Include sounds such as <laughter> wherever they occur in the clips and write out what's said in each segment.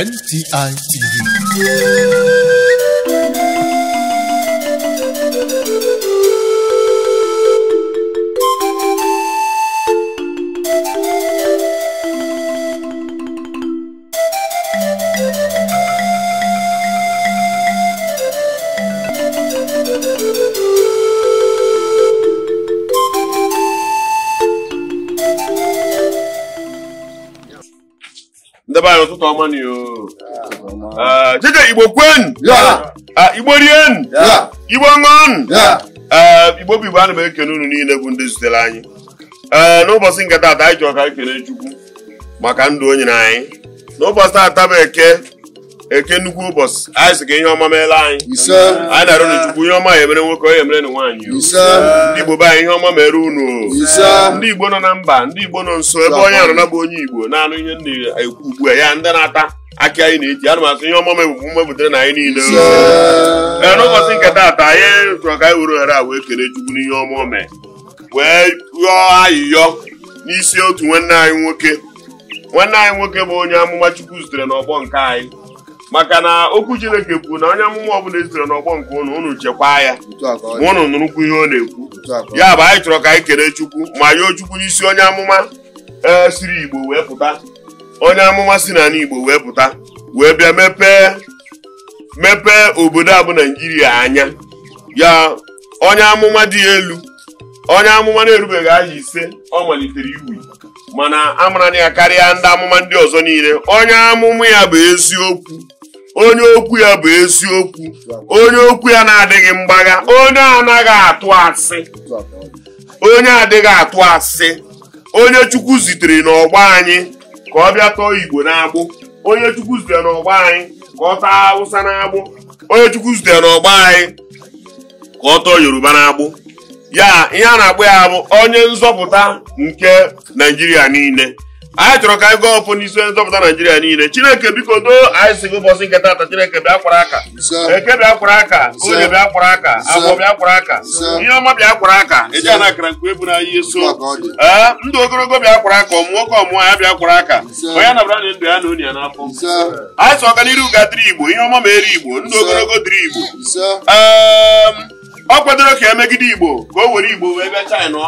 ngidd ebe anyị ụtụtụ ọma na jeje igbo kwenu igbo rienu igbo ṅụọnụ igbo bụ igbo ana m ekene unu niile bụ ndị zutere anyị ee n'ụbọchị nke taata anyị ji ọka ekene chukwu maka ndụ onye na anyị n'ụbọchị taata bụ eke eke nnukwu ụbọchị anyị si ka ihe ọma meela anyị anyị na-arụ na chukwu ihe ọma ya emere nwoke ya emere na nwaanyị ndị igbo be anyị ihe ọma mere unu ndị igbo nọ na mba ndị igbo nọ nso ebe onye arụna bụ onye igbo na-anụ ihe na-ekwu ugbu a ya ndị na-ata aka anyị na-eji ana ihe ọma mebụbụ mmebutere na anyị niile ee n'ụbọchị nke taata anyị chọrọ ka anyị were ohere a wee kere chukwu ihe ọma ome wee yọọ ayịyọ n'isi otu nwanne anyị nwoke nwanne anyị nwoke bụ onye amụma chukwu zutere n'ọgbọ nke anyị maka na okwu chineke kwuru na onye amụma ọbụla esitere n'ọgbọ nke ụnụ ụnụ chekwaa ya ma unu nụrụkwu ihe ọ na-ekwu ya bụ anyị chọrọ ka anyị kere chukwu ma yoo chukwu n'isi onye amụma e, siri igbo wee pụta onye amụma si na igbo wee pụta wee bịa mepee mepee obodo abụ naijiria anya ya onye amụma dị elu onye amụma na-erubeghị aha ise ọ malitere iwu mana amara ya karịa ndị amụma ndị ọzọ niile onye amụma ya bụ eziokwu onye okwu ya bụ eziokwu onye okwu ya na-adịghị mgbagha onye anaghị atụ asị onye adịghị atụ asị onye chukwu zitere n'ọgbọ anyị ka ọ bịa tọọ igbo n'agbụ onye chukwu zitere n'ọgbọ anyị ka ọ taa awụsa n'agbụ onye chukwu zitere n'ọgbọ anyị ka ọ tọọ yoruba n'agbụ ya ihe a na-akpọ ya bụ onye nzọpụta nke naijiria niile anyị chọrọ ka anyị gaa ọfụ n'isi nzọpụta naijiria niile chineke biko doo anyị si ụbọchị nke taata chineke bịa kwara aka eke bịa kwara aka oge bịa kwara aka agwọ bịa kwara aka ihe ọma bịa kwara aka eji ana akara nke ebu na ihe so ee ndụ ogologo bịa kwara aka ọmụ nwoke ọmụọ ya bịa kwara aka onye nabara na ndụ ya na onye ya n'afọ anyị sọ ọganiru ga dịrị igbo ihe ọma ma eri igbo ndụ ogologo dịrị igbo ọ kwadoro ka emegide igbo ka o were igbo wee bịa china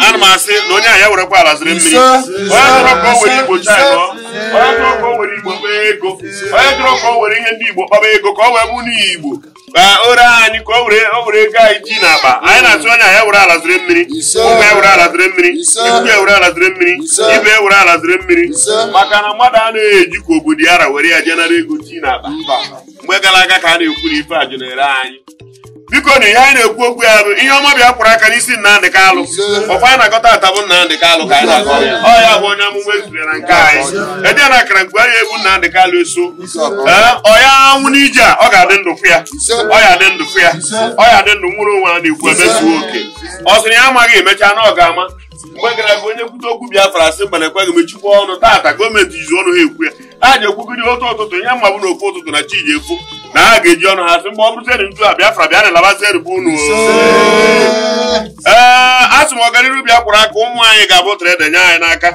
ana m asị na onye a ya werekwa ala ziri mmiri onye dọrọ ka o were igbo china onye dọrọ ka o were igbo kpa ego onye dọrọ ka o were ihe ndị igbo kpaba ego ka o wee bụ n'ihi igbo ka anyị ka o were ego anyị ji n'akpa anyị na-asị onye a ya were ala ziri mmiri ụmụ ya were ala ziri mmiri ikwu ya were ala ziri mmiri ibe ya were ala ziri mmiri maka na mmadụ anaghị eji ka obodo ya were ya jenara ego ji n'akpa mgbe gara aga ka a na-ekwu na ife a jenere anyị biko na ihe anyị na-ekwu okwu ya bụ ihe ọma bịa kwụrụ aka n'isi Nnamdị Kalụ ọkwa anyị na-agọta ata bụ Nnamdị Kalụ ka anyị na-agọ ya bụ onye amụma ezubere na nke anyị ede na akara mgbe anyị egbu Nnamdị Kalụ eso ee ọ ya anwụ n'ije a ọ ga-adị ndụ fụ ya ọ ya adị ndụ fụ ya ọ ya ndụ nwụrụ onwe a na-ekwu emezuo oke ọ sịrị ya amaghị emecha na ọ ga-ama mgbe gara aga onye kwute okwu Biafra asị mana ekweghị m echikwa ọnụ taata gọọmenti jizi ọnụ ha ekwu ya a ji ekwugide otu ụtụtụ ihe mma bụ na ofu ụtụtụ na chi ji ekwu Eh, eh, na ha ga-eji ọnụ ha sị mgbe ọ bụzeri ntu a Biafra bịa na-alabazi eribu unu ee asị m ọganiru bịa kwụrụ aka ụmụ anyị ga-abụ trede nye anyị n'aka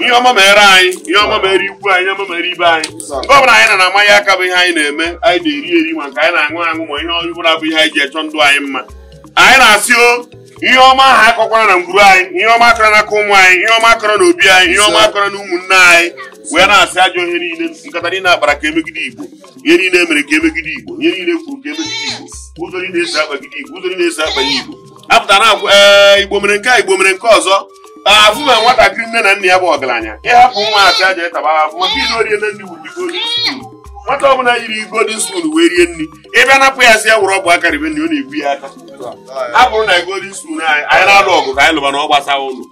ihe ọma mere anyị ihe ọma mere ikwu anyị ihe ọma mere ibe anyị nke ọbụla anyị na-amaghị aka bụ ihe anyị na-eme anyị na-eri eri ma nke anyị na-aṅụ aṅụ ma ihe ọbụla bụ ihe anyị ji echọ ndụ anyị mma anyị na-asị o ihe ọma ahụ akọkwara na ngwuru anyị ihe ọma akọrọ n'aka ụmụ anyị ihe ọma akọrọ na obi anyị ihe ọma akọrọ na ụmụnne anyị wee na-asị ajọ ihe niile nkata niile akpara ka emegide igbo ihe niile emere ka emegide igbo ihe niile kwuru ka emegide igbo ụzọ niile esi akpagide igbo ụzọ niile esi akpanye igbo apụta na ee igbo mere nke a igbo mere nke ọzọ afụma nwatakịrị nne na nna ya bụ ọgaranya ịhapụ nwa asị aja ịtaba afụ maka ihe orie na ndị wuru nwata ọbụla yiri golden spoon wee rie nri ịbịa napụ ya si ya wuru ọgbụ bụ ribe nri ọ na-egbu ya aka a na golden spoon anyị anyị na-alụ ọgụ ka anyị lụba na ọ gbasa ụlọ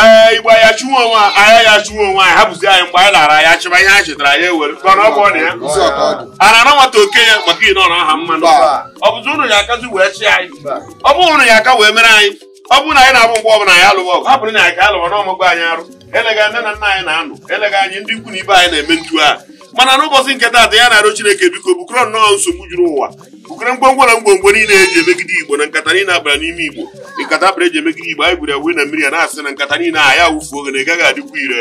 ee igbo ya onwe anya ya chụwa onwe anyị hapụzi anyị mgbe anyị lara ya chịba ihe anyị chetara ya ewere a na nwata ya maka na aha ọ bụzi ụnụ ya akazi wee anyị ọ bụ ụnụ ya aka wee mere anyị ọ bụrụ abụ mgbe ọbụla anyị alụwa ọgụ hapụrụ na ya ka alụwa n'ọmụgwọ anyị arụ eleghị anyị na-anụ eleghị ibe anyị na-eme ntu a mana n'ụbọchị nke taata ya na-arịọ Chineke biko bukọrọ nnọọ nsogbu juru ụwa bukọrọ ngwongwo na ngwongwo niile eji emegide Igbo na nkata niile abara n'ime Igbo nkata abara eji emegide Igbo anyị gwuru ya na mmiri a na-asị na nkata niile a ya wufuo oge na ị gaghị adịkwa ire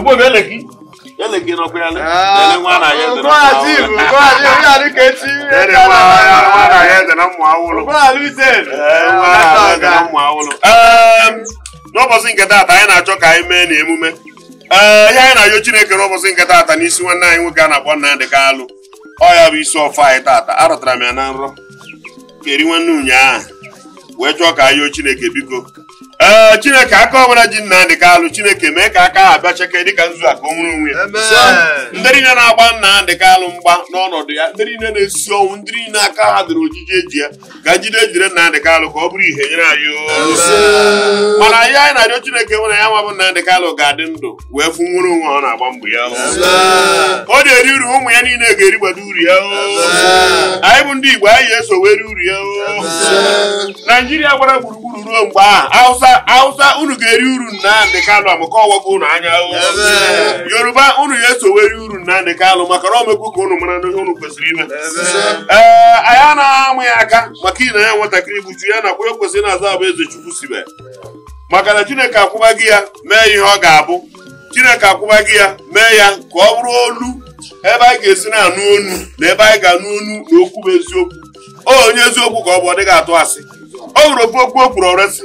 mgbe oge eleki n'ụbọchị nke taata anyị na-achọ ka anyị mee n'emume. ee ehm, ihe anyị na-ayọ Chineke n'ụbọchị nke taata n'isi nwanne anyị nwoke a na-akpọ Nnamdị Kalụ ọ ya bụ isi ọfọ anyị taata Arụtara m ya na nrọ keri nwanne ụnyaahụ wee chọọ ka anyị yọọ Chineke biko ee eh, chineke aka ọbụla ji Nnamdị alụ chineke mee ka aka ha bịa cheke dịka nzu a ka nwere onwe ya ndị niile na-agba Nnamdị alụ mgba n'ọnọdụ ya ndị niile na-esi ọnwụ ndị niile aka ha dịrị ojiji eji ya ka njide ejire Nnamdị Kalụ ka ọ bụrụ ihe nyere anyị mana anyị anyị na-arịọ chineke nwere ya nwa na Nnamdị alụ ga-adị ndụ wee fụ nwere onwe ọ na-agba mbọ ya ọ na-eri uru ụmụ ya niile ga-erigbado uru ya anyị bụ ndị Igbo anyị ga-eso were uru ya Naijiria gbara gburugburu ruo mgbe ahụ awụsa unu ga-eri uru Nnamdị Kanụ amaka ọwago unu anya yoruba unu ga-esoweri uru Nnamdị Kanụ maka na omekwu ka unu mara ihe unu kwesịrị ime ee anyị anaghị amụ ya aka maka ina ya nwatakịrị gbuchu ya nakwa ya kwesịrị na-aza abụ eze chukwu sibe maka na chineke akwụba gị ya mee ihe ọ ga-abụ chineke akwụba gị ya mee ya ka ọ bụrụ olu ebe anyị ga-esi na-anụ onu na ebe anyị ga-anụ onu na okwu bụ eziokwu onye eziokwu ka ọ bụ ọ dịghị atụ asị ọ hụrụ okwu okwu o kwuru ọrịa si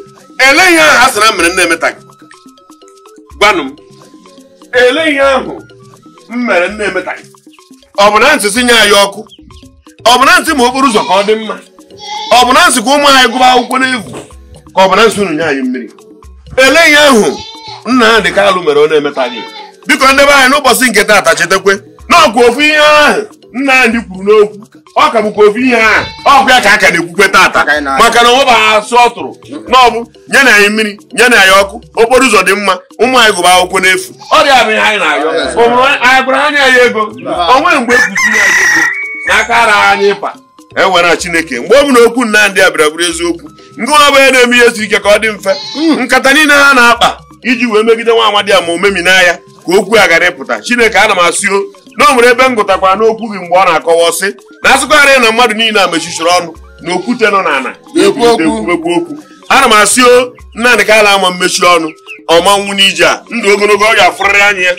ele ihe ahụ a sara mere nne emeta gị gwanụ m ele ihe ahụ m mere nne emeta gị ọ bụ na ntị si anyị ọkụ ọ bụ na ntị ma okporo ụzọ ka ọ dị mma ọ bụ na ntị ka ụmụ anyị gụba akwụkwọ n'egwu ka ọ bụ na ntị unu nye anyị mmiri ele ihe ahụ nna ha dị kalụ mere ọ na-emeta gị biko ndebe anyị n'ụbọchị nke taata chetakwe na ọkụ ofu ihe ahụ nna anyị kwuru n'okwu ọ ka bụkwa ofu ihe a ọgwụ ya ka a ka na-ekwukwe tata maka na onweba asụ ọ tụrụ n'ọbụ nye na anyị mmiri nye na anyị ọkụ okporo ụzọ dị mma ụmụ anyị gụba akwụkwọ n'efu ọ dị abụghị anyị na-ayọ anyị gwara anya ya ego onwe mgbe ekwuzi anyị ego n'aka ara anyị ịpa ewere chineke mgbe ọ bụ na okwu a bịara bụrụ eziokwu ndị nwa bụ na-eme ihe siri ike ka ọ dị mfe hmm. nkata niile ha na-akpa iji wee megide nwa amadi ma omemi n'anya ka okwu a ghara ịpụta chineke ana m asụ na o nwere ebe m gụtakwara n'okwu gị mgbe ọ na-akọwa ọsị na asụkọgharị na mmadụ niile a mechichiri ọnụ na okwute nọ n'ala na-ekwu okwu ana m asị o nnadị ka ala ama mmechi ọnụ ọmanwụ n'ije a ndụ ogologo ọ ga-afụrịrị anya ya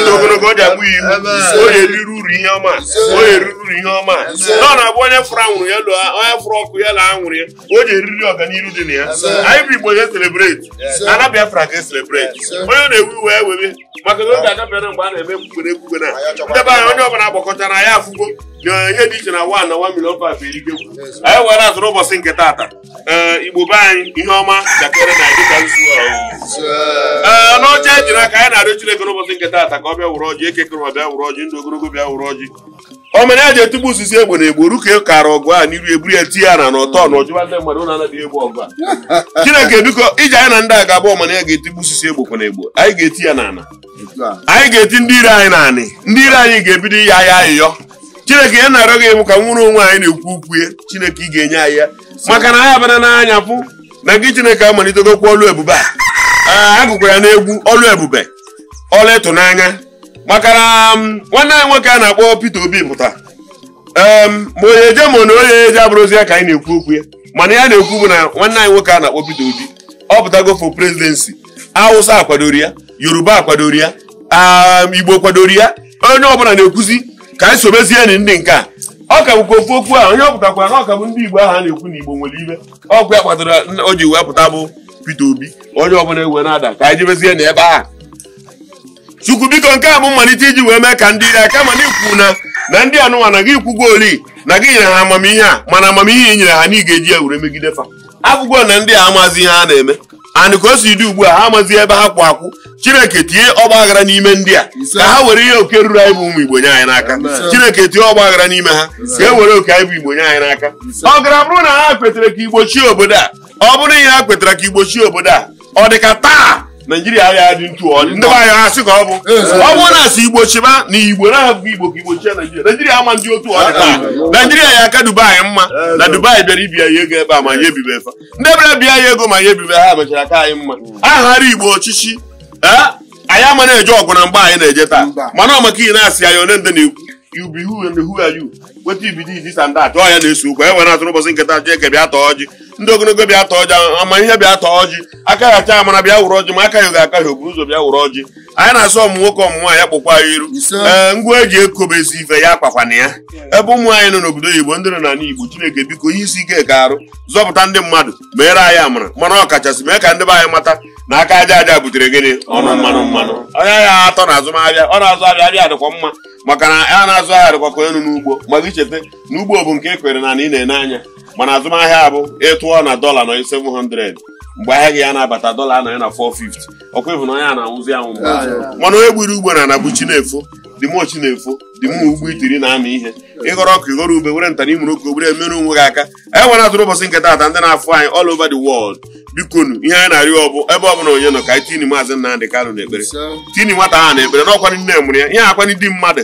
ndụ ogologo ọ ga-akpụ iwu o eriri uru ihe ọma onye eriri uru ihe ọma na ọ na-abụ onye fụrụ anwụrụ ya onye fụrụ ọkụ ya la anwụrụ ya o ji eriri ọganihu dị na ya anyị bụ igbo ya selebreti ana biafra ga eselebreti onye na-ewu iwe ya e webe maka na oge agabịara mgbe a na-eme mgbere ekwugwe na ndebe anya onye ọbụla gbakọtara ya afụgo Eh, ihe dị iche na wa na wa milion five anyị eh, were azụrụ ụbọchị nke taata eh, igbo be anyị ihe ọma dakere na dịka nzu ee n'ọcha aka anyị na-arịọ Chineke n'ụbọchị nke taata ka ọ bịa wụrụ ọjị ekekere bịa wụrụ ọjị ndụ ogologo bịa wụrụ ọjị omena etigbu osisi egbe na egbo ruka e kara ọgụ a n'iru eburu ya tinye ya na n'ọtọ na ndị mmadụ anaghị egbu ọgụ a <laughs> Chineke biko iji anyị na ndị a ga ga eti ya anyị ga-eti ndị anyị ga-ebido ihe ahịa ahịyọ chineke ya na-arịọ gị ka nwụrụ onwe anyị na-ekwu ukwu ya chineke ị ga-enye anyị ya maka na anyị abana n'anya pụ na gị chineke amalitedokwa ọlụ ebube a ah, agụkwara ya n'egwu ọlụ ebube ọlụ ịtụnanya maka na um, nwanne anyị nwoke a na-akpọ Peter Obi pụta um, ma onye eje ma na onye eje abụrụzi ya ka anyị na-ekwu okwu ya mana ya na-ekwu bụ na nwanne anyị nwoke a na-akpọ Peter Obi ọ pụtago for presidency Hausa akwadoro ya Yoruba akwadoro ya um, Igbo kwadoro ya onye ọbụla na-ekwuzi ka anyị sobezie enyi ndị nke a ọ kabụkwa ofu okwu ahụ onye ọ pụtakwa na ọ kabụ ndị Igbo ahụ a na-ekwu na Igbo nwere ibe ọkụ ya kpatara o ji wee pụta bụ Peter Obi onye ọbụla egwe na-ada ka anyị jebezie na ebe ahụ Chukwu biko nke a bụ mmalite iji wee mee ka ndị ya kama na ikwu na na ndị anụnwa na gị kwugo oli na gị nyere ha amamihe a mana amamihe nyere ha na ị ga-eji ya were megide fa akwụkwọ na ndị a amazi ihe a na-eme and ka o si dị ugbu a ha amazi ebe ha kwụ akwụ chineke tie ọgba aghara n'ime ndị a ka ha were ihe oke ruru anyị bụ ụmụ igbo nye anyị n'aka chineke tie ọgba aghara n'ime ha ka e were oke anyị bụ igbo nye anyị n'aka ọ gara bụrụ na ha kwetara ka igbochie obodo a ọ bụrụ ihe ha kwetara ka igbochie obodo a ọ dị ka taa naijiria agha dị ntu ọ bụrụ na asị igbo chiba na igbo na-ahụ igbo ka igbo chia naijiria naijiria ama ndị otu ọ dị taa naijiria ya aka dubai mma na dubai bịara ibi ya ego ebe a ma ya ebibe efa ndị bịara bịa ya ego ma ya ebibe ha mechara aka anyị mma aghara igbo ọchịchị anyị ama na-eje ọgụ na mgba anyị na-eje taa mana ọ maka ihe na-asị anyị onye ndị na-ekwu you be who and who are you weta ibido izi sa ndị atọ ya na-eso okwu e were atụrụ ụbọchị nketa jee kebịa atọ ọjị ndị ogologo bịa tọọ ọjị ama ihe bịa ọjị aka acha amara bịa wụrụ ọjị ma aka ya ga-aka ya ụzọ bịa wụrụ ọjị anyị na-asụ ọmụ nwoke ọmụ nwaanyị kpụkwa ya iru ee ngwa eji ekobe ezi ife ya na ya ebe ụmụ anyị nọ n'obodo oyibo ndị nọ n' igbo chineke biko ihe isi ike ka arụ zọpụta ndị mmadụ meere anyị amara mana ọkachasị mee ka ndị be anyị mata na aka aja aja butere gịnị ọnụ mmanụ mmanụ onye ahịa atọ na azụmahịa ọ na-azụ ahịa abịa dịkwa mma maka na a na-azụ ahịa dịkwa ka elu n'ugbo maka icheta na ugbo bụ nke e kwere na ị na-ene anya mana azụmahịa abụ ịtụ kwụọ na dọla nọ 700 mgbe ahịa gị ya na-abata dọla anọghị na 450 ọkwa ịbụ na onye a na-anwụzi anwụ mana onye gburu ugbo na anabụ chi na-efo dịmochi na-efo dịmụ ugbo itiri na-amị ihe ịghọrọ ọkụ ịghọrọ ube were ntana imuru ka obere mere onwe gị aka anyị e nwere atụrụ ụbọchị ndị na-afụ anyị ọl over the bikonu ihe anyị na-arịọ ọbụ ebe ọbụla onye nọ ka anyị tini maazị Nnamdị Kanụ n'ekpere tini na ekpere nne mụrụ ya ihe akwani di mmadụ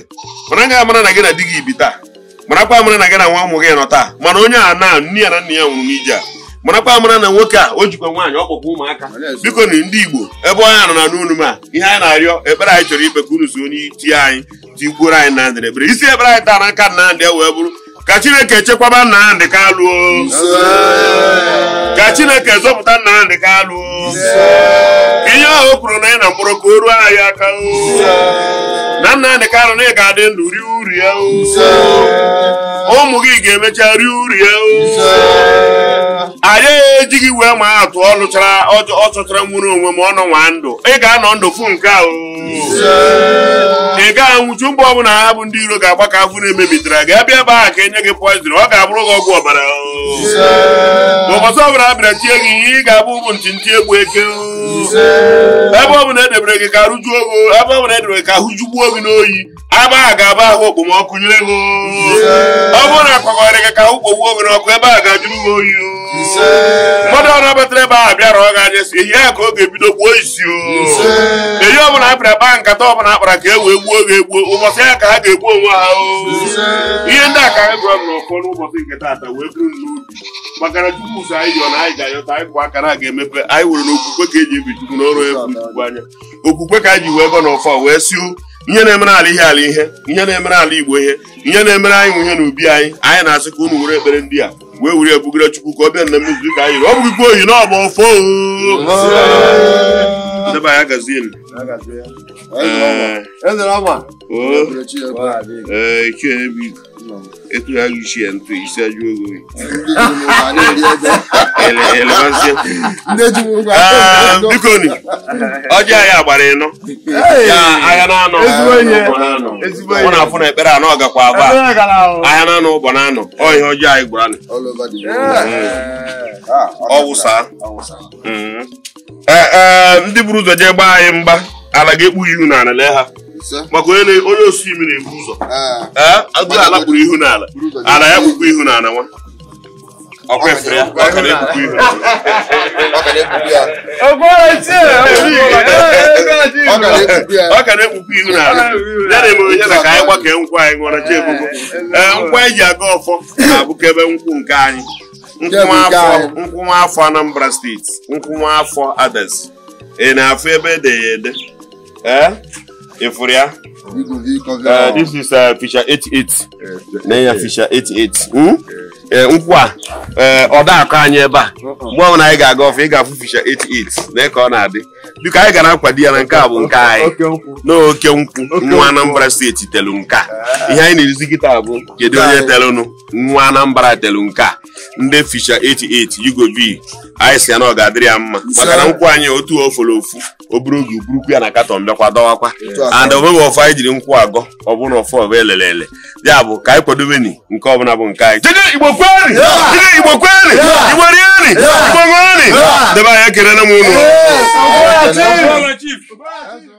mana na gị na di gị na gị nwa ụmụ gị nọ taa mana onye a na nne ya na ya nwụrụ n'ije a marakwa amara na nwoke a o jikwa nwaanyị ọkpọkwa ụmụaka biko na ndị igbo ebe onye anọ na n'unu m a ihe anyị na-arịọ ekpere anyị chọrọ ikpe ka unu zuo onye tie anyị tikwuoro anyị na ndịrebere isi ekpere anyị taa na nka Nnamdị e wee bụrụ ka chineke chekwaba Nnamdị Kalụ ka chineke zọpụta Nnamdị Kalụ ihe ahụ o kwuru na anyị na mkpọrọ ka o ruo anyị aka na ka Kalụ na ị ga-adị ndụ ri uri ya ụmụ gị ga-emecha rie uri ya anyị ejighị wee ma atụ ọ lụchara ọ chọchara nwere onwe m ọ nọ nwa ndụ ị ga-anọ ndụ fụ nke a ị gaghị anwụchu mgbe ọbụla ha bụ ndị iro ga-agba ka afụ na-emebitara gị abịa ebe ahụ ka enye gị poizin ọ ga-abụrụ gị ọgwụ ọbara ụbọchị ọbụla abịara tie gị ihe ị ga-abụ bụ ntị ntị egbu eke ebe ọbụla edebere gị ka rụjuo ogo ebe ọbụla edebere gị ka jugbuo gị n'oyi aba a ga-aba ahụ okpomọkụ nyere gị ọ bụrụ na akwagharị gị ka ahụ kpogbuo gị n'ọkụ ebe a ga-ajụrụ gị oyi mmadụ ọrụ batara ebe ahụ bịara ọ ga-aja si ehi ya ka ọ ga-ebido gbuo isi ehi ọbụla akpara akpa nkata ọbụla akpara ka e wee gbuo ga egbuo ụbọchị ya ka ha ga-egbu onwe ha ihe ndị a ka anyị gụrụ n'ụfọ n'ụbọchị nke taata wee bụrụ n'ubi maka na chukwu ụzọ anyị yọ na anyị ga-ayọta anyị bụ akara a ga-emepe anyị nwere na okwukwe ka eji ebi chukwu n'ọrụ efu chukwu anya okwukwe ka anyị ji wee gọ n'ụfọ wee si nye na-emere ala ihe ala ihe ihe na-emere ala igbo ihe nye na-emere anyị ihe n'ubi anyị anyị na-asị ka unu were ekpere ndị a wee were ebugara chukwu ka ọ bịa na mmezu ka anyị ọ bụghịkwa oyi na ofe Eh. Oh. Eh, etụgharị uche ya ntụ isi ajụ ogo ah, bikoni ọjị ahịa gbara ịnọ na-anọ mụ na afụ na ekpere anọ aba ahịa na-anọ ụbọ na-anọ ọ ihe ọjọọ anyị gwara eh. ah, ọwụsa mm. ndị buru ụzọ jee gbaa anyị mgba ala ga-ekpu ihu n'ala lee ha maka onye onye osi na ebu ụzọ ah. Ah, agụ ala kpuru ihu n'ala ala ya kpukpu ihu n'ala nwa ọkwa efere ya ọka na-ekpukpu ihu ọka na-ekpukpu ihu n'ala ya na emere ya na ka anyị gbakee nkwụ anyị ṅụọra eh, ji ebubo nkwa eji aga ọfọ na-abụka ebe nkwụ nke anyị nkwụ afọ anambra steeti nkwụ afọ adas ị na-afụ ebe e ede ya ede Efuru Efuria. Uh, this is uh, Fisher 88. Na ya Fisher 88. Hmm? Ee eh, nkwụ a eh, ọ anyị ebe a mgbe ọbụla anyị ga-aga ọfụ ị ga-afụ Fisher 88 na eke ọ na-adị biko anyị gara akwado ya na nke a bụ nke anyị n'oke nkwụ nwa Anambra steeti telu nke a ihe anyị na-erizi kịta bụ kedu onye telụnụ nwa Anambra telu nke a ndị Fisher 88 Yugo V anyị si ya na ọ ga-adịrị ya mma maka na nkwụ anyị otu ofolo ofu oburu oge uburukwu ya na katọn bịakwa dọwakwa and onweghị ọfọ anyị jiri nkwụ agọ ọ bụrụ na ọfọ ọbụ elele ele ya bụ ka anyị kwadobeni nke ọbụla bụ nke anyị igbo kweri jide igbo kweri igbo rieri igbo ṅụrịrị debe anya kelere m unu